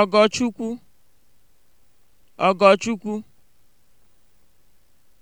Ọgọchukwu, Ọgọchukwu